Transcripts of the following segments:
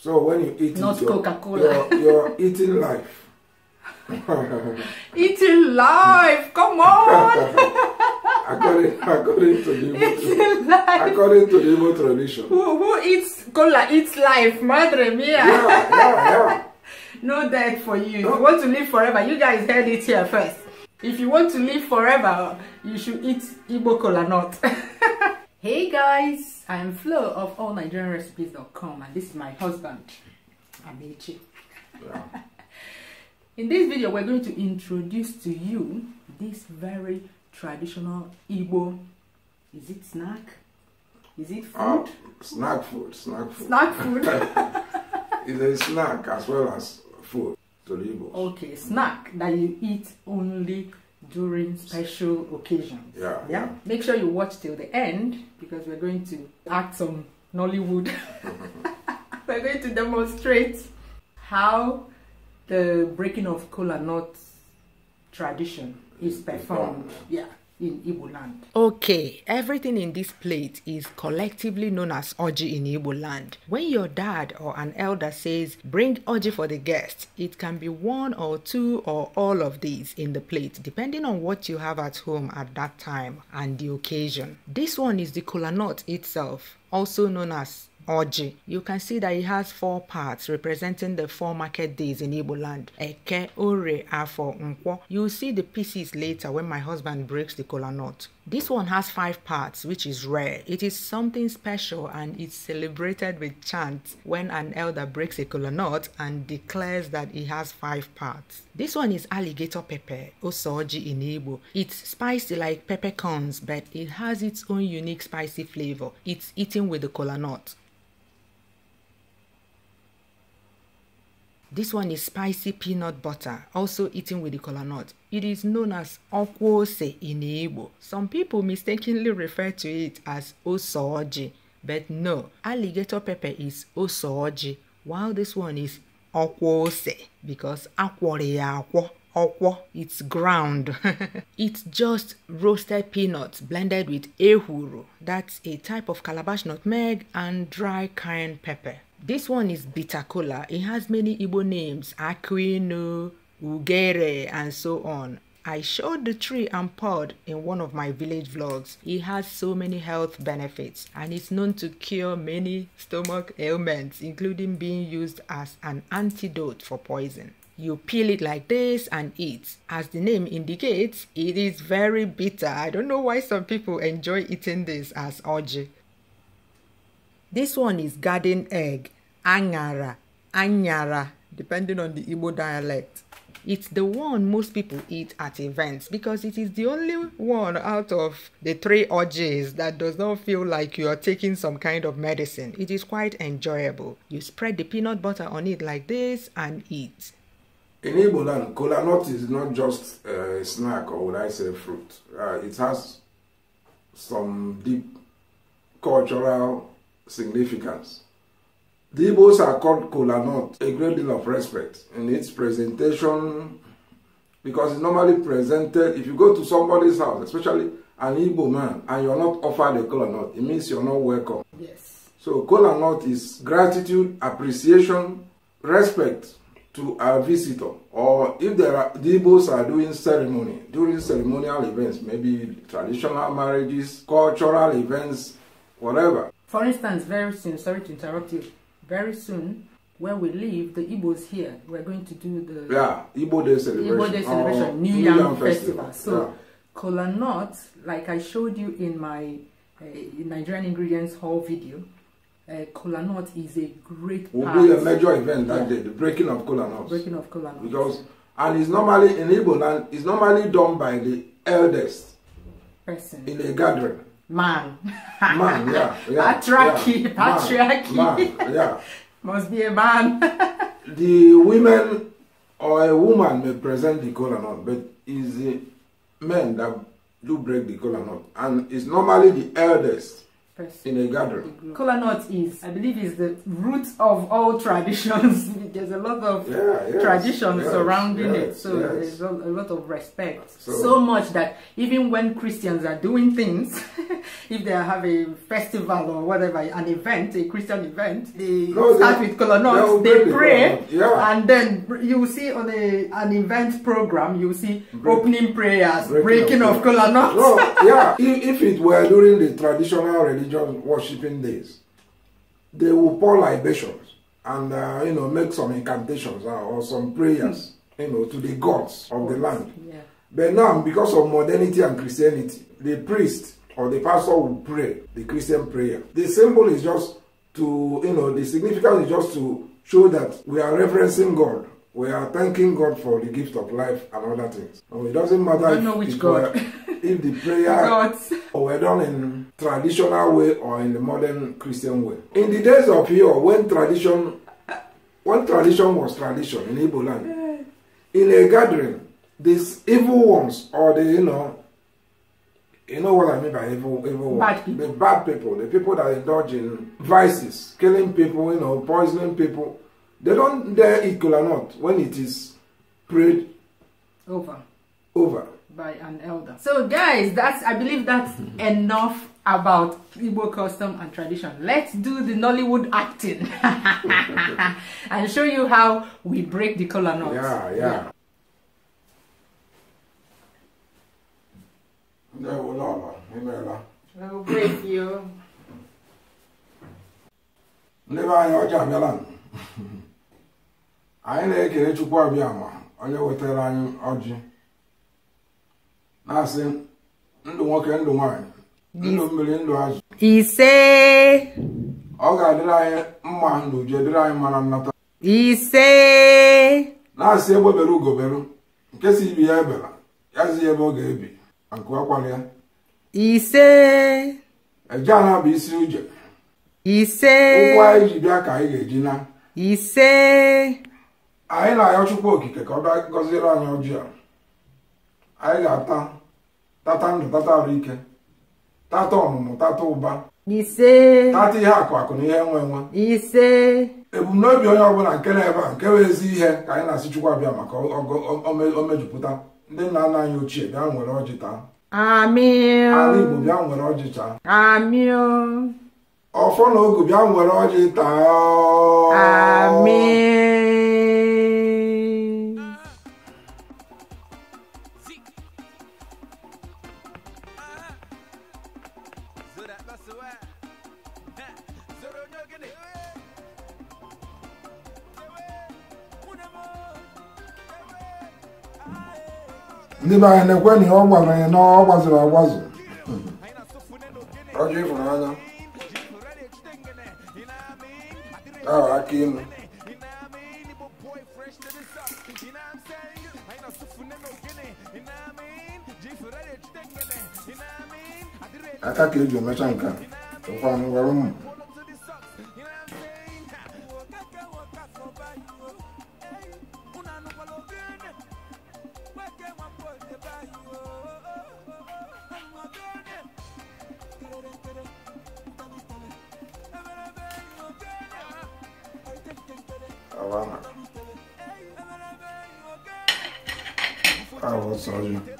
So when you eat not Coca-Cola, you're, you're, eating life. eating life. Come on. according, according to the Igbo, according to the Igbo tradition. Who, who eats cola eats life, madre mia. Yeah, yeah, yeah. no death for you. No. If you want to live forever, you guys heard it here first. If you want to live forever, you should eat Igbo cola not. hey guys, I am Flo of allnigerianrecipes.com and this is my husband, Amechi. Yeah. In this video, we're going to introduce to you this very traditional Igbo, is it snack? Is it ah, food? Uh, snack food, snack food. Snack food. it's a snack as well as food to the Okay, snack that you eat only during special occasions. Yeah, yeah. Make sure you watch till the end because we're going to act some Nollywood. we're going to demonstrate how the breaking of kola nut tradition is performed. Yeah in Igbo land. Okay, everything in this plate is collectively known as oji in Igbo land. When your dad or an elder says, bring oji for the guest, it can be one or two or all of these in the plate, depending on what you have at home at that time and the occasion. This one is the kola nut itself, also known as Oji. You can see that it has four parts representing the four market days in Igbo land. Eke, Ore, Afo, Nkwo. You'll see the pieces later when my husband breaks the kola nut. This one has five parts, which is rare. It is something special and it's celebrated with chants when an elder breaks a kola nut and declares that it has five parts. This one is alligator pepper, osoji in Igbo. It's spicy like peppercorns, but it has its own unique spicy flavor. It's eaten with the kola nut. This one is spicy peanut butter, also eaten with the kola nut. It is known as okwose in Igbo. Some people mistakenly refer to it as osooji, but no, alligator pepper is osooji, while this one is okwose because akwore akwo okwo it's ground it's just roasted peanuts blended with ehuru that's a type of calabash nutmeg and dry cayenne pepper This one is bitter cola. It has many Igbo names, Aquino, Ugere, and so on. I showed the tree and pod in one of my village vlogs. It has so many health benefits and it's known to cure many stomach ailments including being used as an antidote for poison. You peel it like this and eat. As the name indicates, it is very bitter. I don't know why some people enjoy eating this as ogi. This one is garden egg, angara, anyara, depending on the Igbo dialect. It's the one most people eat at events because it is the only one out of the three orgies that does not feel like you are taking some kind of medicine. It is quite enjoyable. You spread the peanut butter on it like this and eat. In Igbo land, cola nut is not just a snack or would I say fruit. Uh, it has some deep cultural significance. The Igbos are called kola a great deal of respect in its presentation because it's normally presented, if you go to somebody's house, especially an Igbo man, and you're not offered a kola it means you're not welcome. Yes. So kola is gratitude, appreciation, respect to a visitor. Or if there are, the Igbos are doing ceremony, during ceremonial events, maybe traditional marriages, cultural events, whatever. For instance, very soon, sorry to interrupt you, very soon, where we live, the Igbos here, we're going to do the yeah, Igbo Day celebration, Igbo Day celebration oh, New, Year Yam, Festival. Festival. So, yeah. kola nut, like I showed you in my uh, Nigerian Ingredients haul video, uh, kola nut is a great will be a major event that yeah. day, the breaking of kola nuts. Breaking of kola nuts. Because, and it's normally, in Igbo land, it's normally done by the eldest person in a gathering. man. man, yeah, yeah. Patriarchy, yeah, patriarchy. Man, man, yeah. Must be a man. the women or a woman may present the color not, but it's the men that do break the color not, and it's normally the eldest person in a gathering. Kola is, I believe, is the root of all traditions. there's a lot of yeah, yes, traditions yes, surrounding yes, it, so uh, there's a, lot of respect. So, so, much that even when Christians are doing things, if they have a festival or whatever, an event, a Christian event, they no, start they, with kola they, pray, yeah. and then you see on a an event program, you see Break, opening prayers, breaking, breaking of, of No, yeah, if, if it were during the traditional religion just worshiping this, they will pour libations and uh, you know make some incantations uh, or some prayers, mm. you know, to the gods of the land. Yeah. But now, because of modernity and Christianity, the priest or the pastor will pray the Christian prayer. The symbol is just to you know the significance is just to show that we are referencing God we are thanking God for the gift of life and other things. And it doesn't matter if, God, if, the prayer or we're done in traditional way or in the modern Christian way. In the days of yore, when tradition, when tradition was tradition in Igbo land, in a gathering, these evil ones or the you know, you know what I mean by evil, evil bad ones, the bad people, the people that indulge in vices, killing people, you know, poisoning people, they don't dare eat or not when it is prayed over. Over by an elder. So guys, that's I believe that's enough about Igbo custom and tradition. Let's do the Nollywood acting and show you how we break the color knot. Yeah, yeah. I will break you. I'm anyi to ọjọọ to anyị na-ekele Chukwu Abịama onye wetara anyị ọjị na-asị ndụ nwoke ndụ nwaanyị ndụ mmiri ndụ azụ ise ọ ga-adịrị anyị mma n'uju uju dịrị anyị mara nnata ise na-asị egbebere ugoberu nke si ibi ya ebela ya zi ebe ọ ga-ebi akụ akwara ya ise eje ana bụ isi uje ise ụkwụ anyị ji bịa ka anyị ga-eji na ise anyị na-ayọ chukwu okike ka ọ bịa gọziere anyị ọjị a anyị ga-ata tata ndụ tata ahụike. ike tata ọmụmụ tata ụba ise tata ihe akụ akụ na ihe nwe nwe ise ebumnobi onye ọbụla nke na ebe a nke weezi ezi ihe ka anyị na-asị Chukwu abịa maka o mejupụta ndị nna nna anyị ochie bịa nwere ọjị taa ala Igbo bịa nwere ọjị taa ọfọ na ogu bịa nwere ọjị taa ndị be anyị na-ekwe na ọ gwara anyị na ọ gbaziri agbazụ ọjọ ịfụnanya ahụ aka ịnụ aka ka eji emecha nke a fazendo um garoto. Havana. Ah, what's up,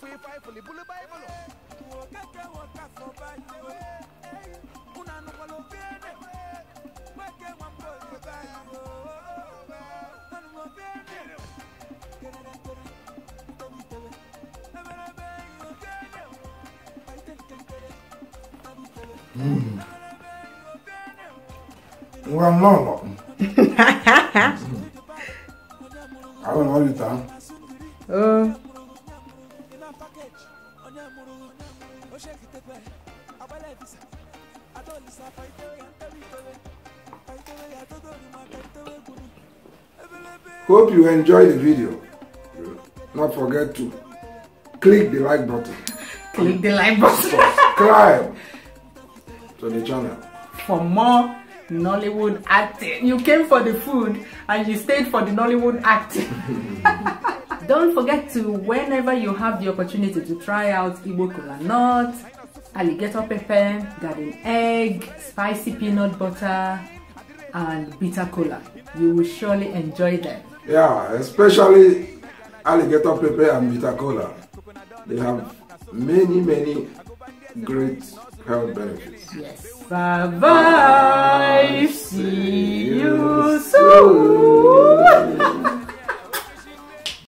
fuyifayifuli bulu bayibulu wo keke wo ka fɔ bayiwo kunanugolo bene weke wọn kò lè bayiwo Hope you enjoy the video. Not forget to click the like button. Click the like button. Subscribe to the channel. For more Nollywood acting. You came for the food and you stayed for the Nollywood acting. Don't forget to, whenever you have the opportunity to try out Igbo Kola Nut, alligator pepper, garden egg, spicy peanut butter, and bitter cola. You will surely enjoy them. Yeah, especially alligator pepper and bitter cola. They have many, many great health benefits. Yes. Bye-bye. See you soon.